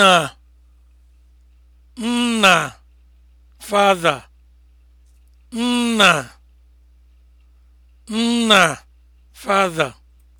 nna nna father nna nna father